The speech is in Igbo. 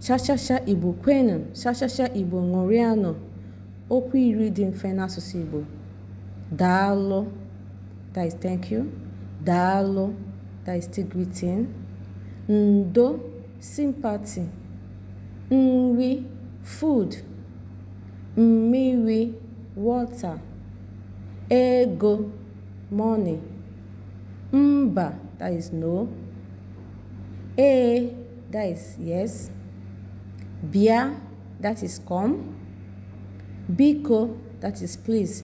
shashasha Igbo kwenu shashasha Igbo ṅụrịanụ, okwu iri dị mfe n'asụsụ Igbo. Daalụ that is thank you. Daalụ that is greeting. Ndo sympathy. Nri food. Mmiri water. Ego money. Mba is no. Ee is yes. Bia, that is come. Biko, that is please.